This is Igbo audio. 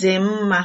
dị mma